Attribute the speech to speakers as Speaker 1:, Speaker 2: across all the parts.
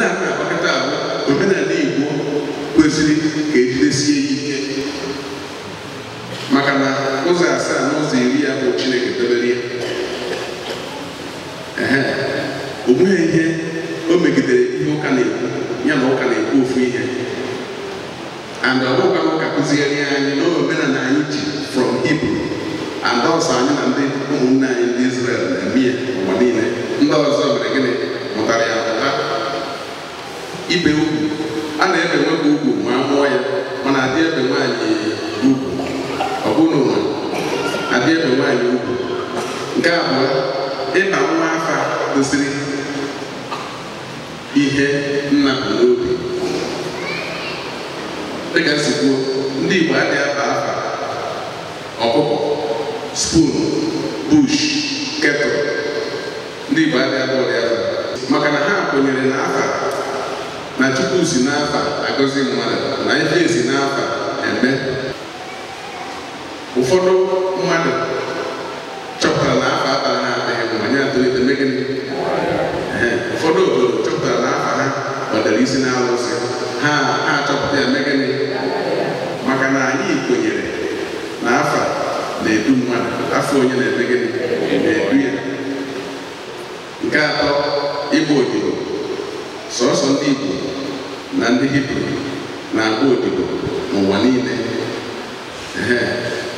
Speaker 1: ndị a na-agbakọta agwa omenala Igbo kwesịrị ka ejidesie ya ike maka na ụzọ asaa na ụzọ iri ya bụ Chineke debere ya o ihe o megidere ihe ụka na-ekwu ya na ụka na-ekwu ofu ihe and ọ bụkwa ụka kụzigharị anyị na omenala anyị ji from ibu and ọsọ anyị na ndị ụmụnne kwụsịrị ihe nna bụ n'obi dịka si ndị Igbo adịghị aba afa ọkụkọ spoon bush kettle ndị Igbo adịghị aba ọrịa maka na ha kwenyere na afa na Chukwu si n'afa agọzi mmadụ na ife e si n'afa eme ụfọdụ mmadụ gịnị ụfọdụ obodo chọpụtara na afa ha gbadara isi n'alụsị ha achọpụta ya mee gịnị maka na anyị kwenyere na afa na-edu mmadụ afọ onye na-eme gịnị na-edu ya nke atọ ịgba odibo sọsọ ndị Igbo na ndị Hibru na-agba odibo n'ụwa niile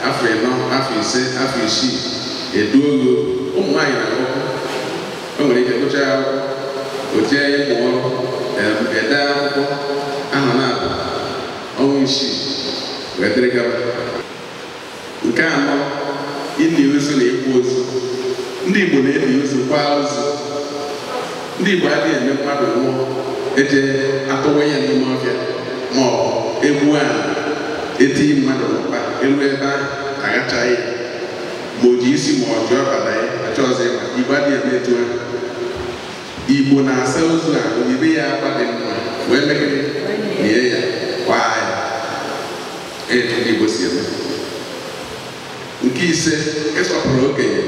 Speaker 1: afọ ịnọ afọ ise afọ isii eduo ogo ụmụ nwaanyị na-agụ o nwere ike gụchaa akwụkwọ o jee ede akwụkwọ aha na-abụ ọnwa isii wee dịrị gaba nke anọ ili ozu na ịkwa ozu ndị Igbo na ebi ozu kwaa ozu ndị Igbo adịghị eme mmadụ nwụọ eje atụwa ya n'ime ọhịa ma ọ egbuo ala etinye mmadụ n'ụkpa elu ebe ahụ aghachaghị ya ma o ji isi ma ọ jụọ ọbara ya chọọ ọzọ adịghị eme etu ahụ igbo na-asa ozu a oyibe ya agba dị mma wee megide nie ya kwaa ya etu igbo si eme nke ise ịsọpụrụ okenye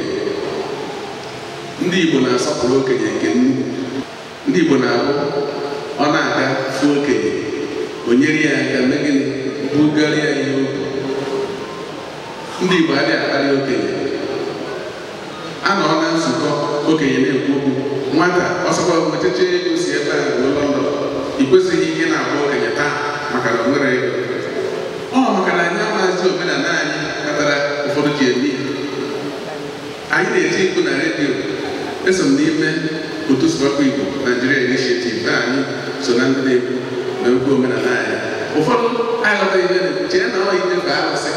Speaker 1: ndị igbo na-asọpụrụ okenye nke nnukwu ndị igbo na-abụ ọ na-aga fụ okenye onyere nyere ya aka megide bugarịa ya ndị igbo adịghị akparị okenye a nọ na nzukọ okenye na-ekwu okwu nwata ọsọkwa ocheche ego si ebe a ruo London ị kwesịghị ihe na-agba okenye taa maka na nwere ego ọ maka na anyị amaghịzi omenala anyị kpatara ụfọdụ ji eme anyị na eji ikwu na redio eso m n'ime otu sụbakwa igbo Nigeria Initiative na anyị so na ndị na-ekwu na okwu omenala anyị ụfọdụ aghọta ihe na-ekwu chee na ọ ihe bụ alụsị.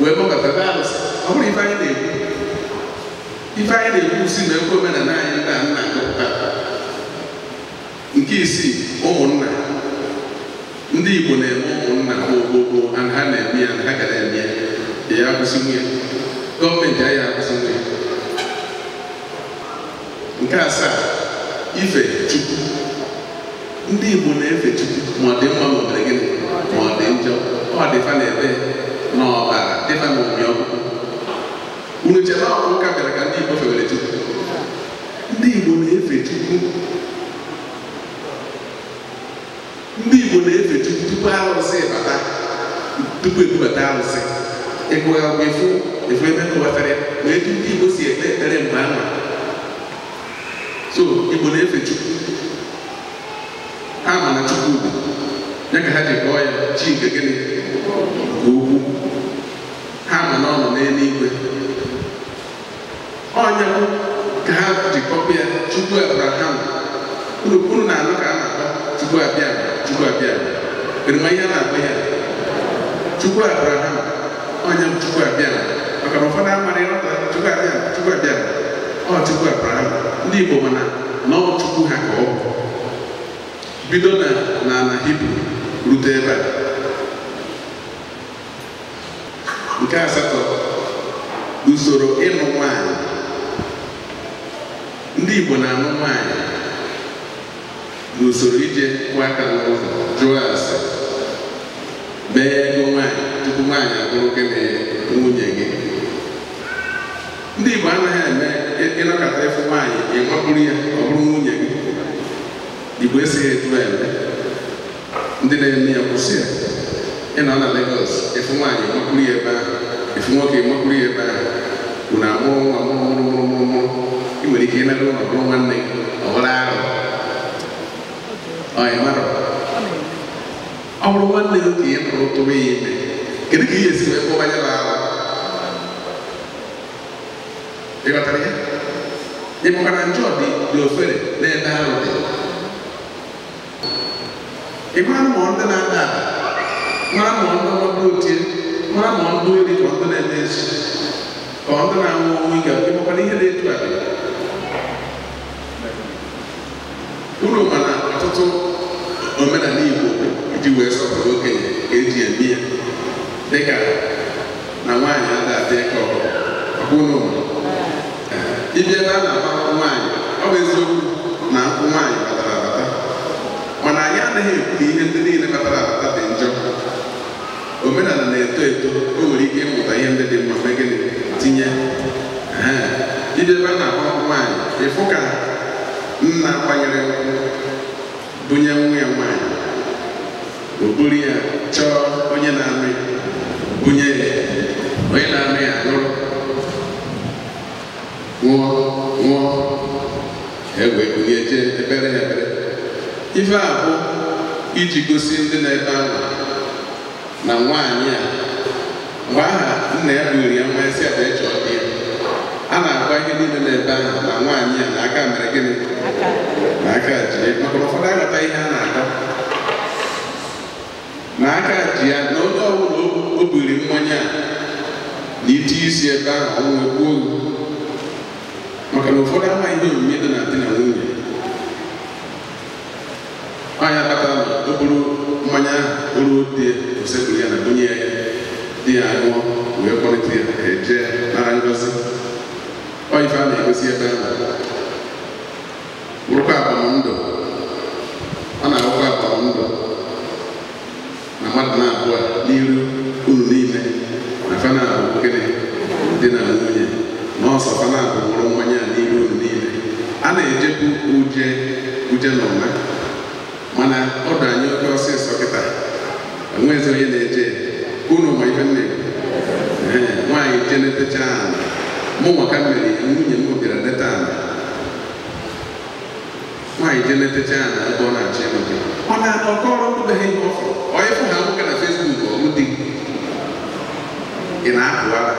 Speaker 1: wee gbakọta alụsị, ọ bụrụ ife anyị na-ekwu ife anyị na-ekwusi na ekwe omenala anyị nna nna nna nke isii ụmụnna ndị Igbo na-eme ụmụnna ogbogbo ha na-eme ya na ha gara eme ya ya akwụsị nwunye gọọmenti anyị akwụsị nwunye nke asaa ife chukwu ndị Igbo na-efe chukwu ma ọ dị mma ma ọ dị gịnị ma ọ dị njọ ọ dịfa na ebe unu ụka bịara ka ndị Igbo Chukwu ndị Igbo na-efe Chukwu ndị Igbo na-efe Chukwu tupu arụsị bata tupu ebubata arụsị ịgụa ụgwọ efu ebe ndị Igbo si ekpe ekpere mgbe so Igbo na-efe Chukwu ha ma na Chukwu ya ka ha ji ya chi nke gịnị nke ha ma na n'eluigwe onye bụ ka ha jikọba ya Chukwu Abraham kpurukwuru na anụ ka a na-akpọ tupu abịa tupu abịa erima ihe a na-akpọ ya Tupu Abraham onye bụ Chukwu abịa maka na ụfọdụ amara ịrọta tupu abịa tupu abịa ọ tupu Abraham ndị Igbo mana na ọ Chukwu ha ka ọ bụ bido na n'ala Hibru rute ebe a nke asatọ usoro ịlụ nwanyị ndị Igbo na-amụ nwaanyị n'usoro ije kwa aka n'ụzọ jụọ ase bee ego nwaanyị tupu nwaanyị abụrụ gị na nwunye gị ndị Igbo anaghị eme ịnọkọta ịfụ nwaanyị ịnwapụrụ ya ọ bụrụ nwunye gị Igbo esighị etu eme ndị na-eme ya kwụsị ya ị nọ na Lagos ịfụ nwaanyị ịnwapụrụ ya ebe ahụ ịfụ nwoke ịnwapụrụ ya ebe ahụ unu amụrụ nwa mụrụ mụrụ mụrụ mụrụ dije en algo no como ande obrado ay maro awro wande do ti en pro to be ne kede ki yesi me ko banya ba e ba tare e mo kana njo di do fere ne da ro de e ma mo onda na da ma mo onda mo do ti ma mo do ri ko onda na ne ko onda na mo mi ga ko pa ni he de tu ade Igbo na ọtụtụ omenala Igbo iji wee sọpụrụ okenye ka eji eme ya dịka na nwaanyị a ga adadị ka ọbụla ịbịa ebe a na-agba nwaanyị ọ bụ eziokwu na akwụ nwaanyị batara abata mana anyị anaghị ekwu na ihe ndị niile batara abata dị njọ omenala na-eto eto o nwere ike ịmụta ihe ndị dị mma megịnị tinye ịbịa ebe a na-agba nwaanyị ịfụ ka nna kwanyere bunye nwa ya nwanyị okpuru ya chọọ onye na-amị bunye onye na-amị ya lụrụ nwụọ nwụọ egwe ebere ya ebere ife a iji gosi ndị na-ebe ahụ na nwaanyị a mgbe aha nna ya ya nwa esi ada ịchọọ a na-agwa ihe niile na-ebe ahụ na nwaanyị a na aka mere gịnị na aka ji maka na ụfọdụ aghọta ihe a na-akọ na aka ji ya na onye ọbụla o biri mmanya na ite isi ebe ahụ ọnwụ gbuo maka na ụfọdụ ama ihe onyinye dị na di na nwunye nwaanyị akpatara na o buru mmanya ahụ bụrụ di osekwu ya na bunye ya di ya ṅụọ si ebe m bụrụkwa agbamndụ ọ na-awụkwa agbamndụ na mmadụ na-abụọ n'iru unu niile na fanabụ gịnị dị na nwunye na ọsọ fanabụ mụrụ mmanya n'iru unu niile a na-ejekwu uje uje na ụma mana anyị oke ọsịsọ kịta mumuwakamere emunye nuko bira netana nwaanyị neteta ya na ebe ọ na-achọ ịnọgị ọ na-atọ ọkọ ọrụ ndụbeghị ihe ọfụ onye fụ ha nwoke na fesbuk ọrụ dị ị na-apụ ara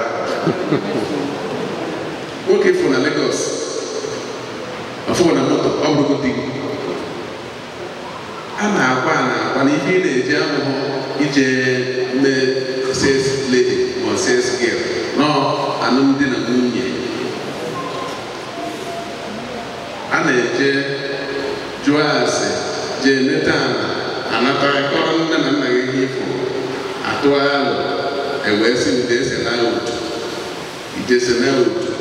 Speaker 1: nwoke fụ na legos ọfụ na moto ọ bụrụ dị a na-agwa a na-agwa na ihe ị na-eji amụhụ ije mee ses ledi ma ses gil nọọ alụmdi na nwunye a na-eje jụọ ase jee meta ala anata kọrọ nne na nna gị ifo atụ alụ ewee si ndị ese na otu ijesi na otu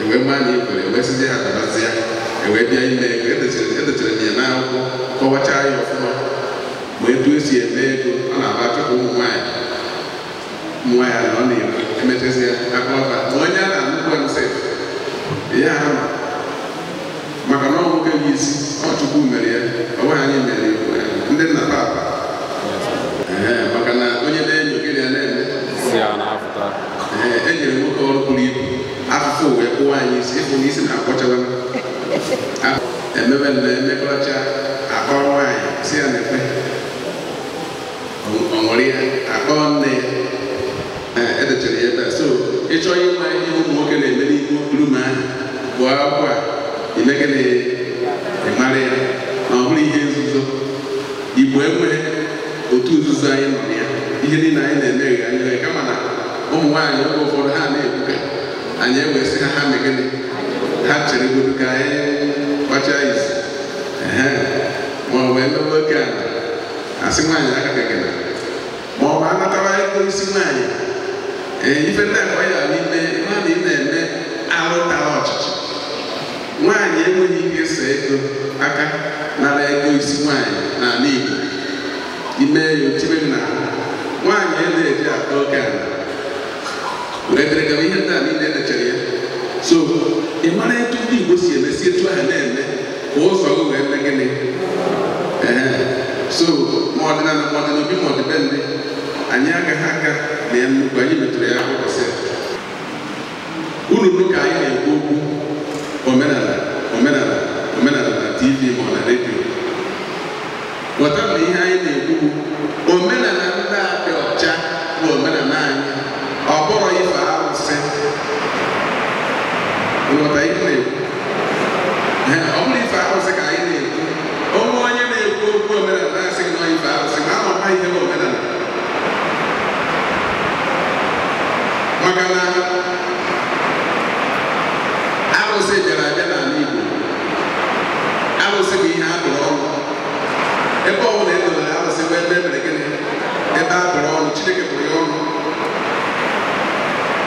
Speaker 1: ewee ma na ikwere ewee sizi ha ya ewee bịa ime ego e e ya n'akwụkwọ kọwachaa ya ma etu esi eme ego ọ na-agba ụmụ nwaanyị emetezie akụnụba na onye a na-anụkwa nse ya ama maka na ọ nwoke isi ọ mere ya ọ bụghị anyị mere ndị nna papa maka na onye na-enyo gị ya na-eme e nyere nwoke ọrụ buru ibu afụfụ wee kpụwa anyị isi ịfụ na isi na emebe na emekọcha akpọ nwaanyị si ya na-ekpe ya akpọ ya edechere ya ebe a so ịchọọ ịma ihe ụmụ nwoke na-eme n'ihu rum ahụ bụ akwụkwọ a imegịnị ịmara ya na ọ bụrụ ihe nzuzo igbo enweghị otu nzuzo anyị nọ na ya ihe niile anyị na-eme ghe anyị kama na ụmụ nwaanyị oge ụfọdụ ha na-ebuga anyị ewee sị ha ha megịnị ha chere godo ka anyị kpacha isi ma ọ wee mewe oke ala asị nwaanyị aka gagara ma ọ bụ anatara ego isi nwaanyị Eh, ife na-ekwe ya n'ime ihe na ị na-eme alụtala ọchịchị nwaanyị enweghị ike so ego aka nara ego isi nwaanyị na Igbo ime ya otibe na nwaanyị e na-eji ata oke ala ihe ndị a niile elechara ya so ị mara etu ndị Igbo si emesi etu ahụ na-eme ka ụzọ gị wee mee gịnị ee so ma ọ na ma ọ dị ma ndị anyị agaghị aga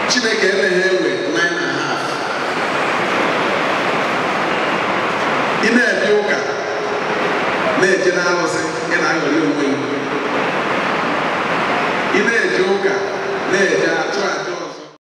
Speaker 1: chineke emeghere